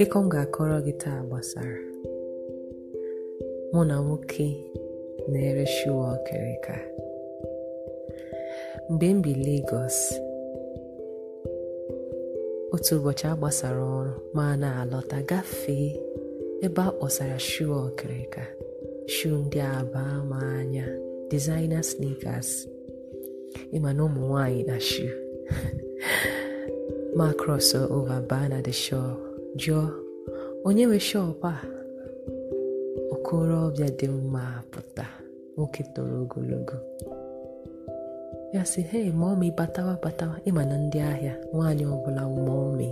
akụkọ m ga-akọrọ gị taa gbasara mụ na nwoke na-ere shuwa ọkịrịka mgbe m bi Lagos otu ụbọchị a gbasara ọrụ ma na-alọta gafee ebe a kpọsara shuwa ọkịrịka shu ndị aba ma anya designer sneakers ịma na ụmụ nwanyị na shu ma cross ova baa na shop jụọ onye nwe shop a okorobịa dị mma pụta nwoke toro ogologo ya sị hei mọmị batawa batawa ịma na ndị ahịa nwaanyị ọbụla mọmị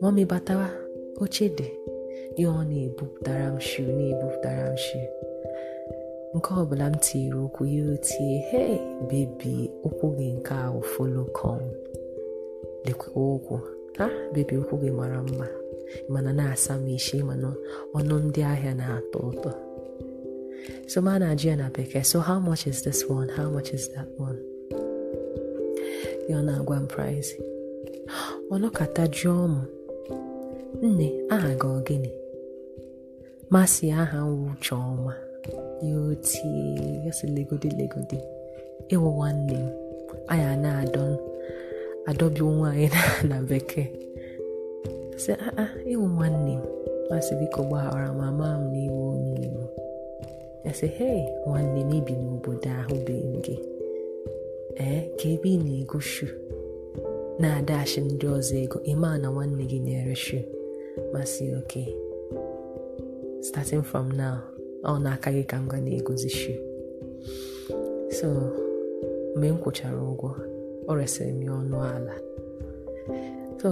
mọmị batawa oche dị ihe ọ na-ebupụtara m shi na-ebupụtara m shi nke ọbụla m tiri ụkwụ ya otie hei bebi ụkwụ gị nke ahụ folo kọn lekwa ụkwụ a bebi nkwụ gị mara mma mana na-asa m isi mana ọnụ ndị ahịa na-atọ ụtọ so ma na-ajụ ya na bekee so how much is this one how much is that one ya na-agwa m price ọnọkata jụọ m nne aha gị ọgịnị masị aha nwụcha ọma ya otie ya legodi legodi ịwụ nwanne m anya na-adọ adọbi nwaanyị na bekee sị aa ịwụ nwanne m masị biko gbaghara ma maa m na iwe onye igbo ese hei nwanne m ibi n'obodo ahụ be gị ee ka ebe ị na-ego shu na-adachi ndị ọzọ ego ịma na nwanne gị na-ere shu masị oke starting from now ọ na-aka gị ka m ga na-egozi shu so mgbe m kwụchara ụgwọ ọ resịrị m ya ọnụ ala so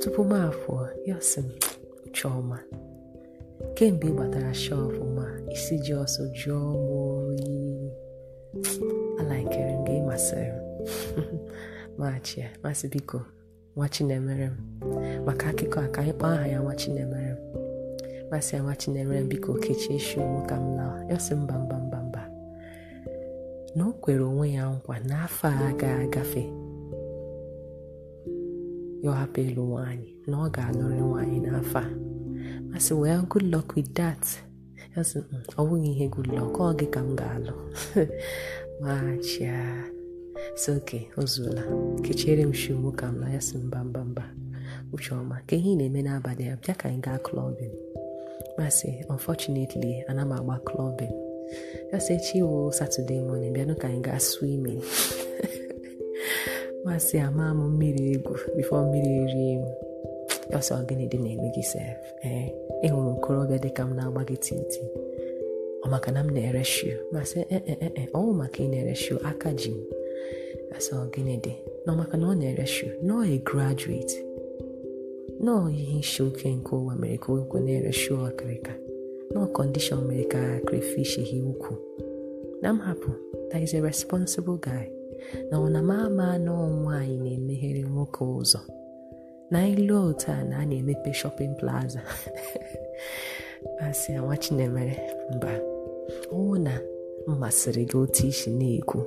tupu m afọ ya sị m chiọma kemgbe ị gbatara shọpụ ma isi ji ọsọ jụọ m oyi alaikere m gị ịmasịrị m machi masị biko nwa chinemere m maka akụkọ a ka anyị kpọọ aha ya nwa chinemere m masị ya nwa chinemere m biko kechie shi ka m na ya sị mba mba mba na o kwere onwe ya nkwa n'afọ a ga-agafe ya hapụ ịlụ nwaanyị na ọ ga-alụrị nwaanyị n'afọ a masị well good luck with that mm, ọ bụghị ihe good luck ọ gị ka m ga-alụ machia si oke o kechere m shi ka m na ya sị mba mba mba uche ọma ka ihe ị na-eme n'abalị a bịa ka anyị gaa klọbin masị unfortunately ana m agba klọbin just say chiwo oh, Saturday morning bịanụ ka anyị gaa swimming masị ama m mmiri egwu bifo mmiri rie m ọsọ dị na sef ee ịhụrụ okorobịa dịka m na-agba gị titi ọ maka na m na-ere shu masị ee ọwụ maka ị na-ere aka ji m asọ dị na ọ na ọ na-ere shu nọọ e graduate nọọ ihe isi oke nke ụwa mere ka na-ere shu ọkịrịka no condition mere ka crayfish hie ukwu na m hapụ that is a responsible guy na ọ na m ama na nwaanyị na-emeghere nwoke ụzọ na ilu otu a na a na-emepe shopping plaza asị nwa chinemere mba ọwụ na mmasịrị gị otu isi na-ekwu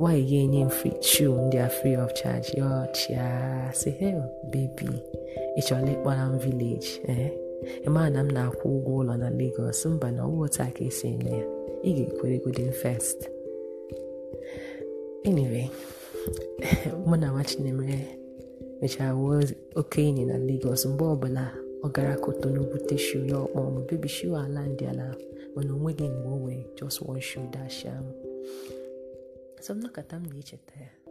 nwanyị ga-enye m chew ndị a free of charge ya ọchịa si hel bebi ị chọrọ m village ee eh? ịmaa na m na-akwụ ụgwọ ụlọ na Lagos mba na ọwa otu ka esi eme ya ị ga-ekwere godin first anyway mụ na nwa Chinemere mechara wuo oke enyi na Lagos mgbe ọbụla ọ gara Kotonu bute shu ya ọkpọ m bebi ala ndị ala mana onweghị mgbe o wee just one shoe dash ahụ so m m na-echeta ya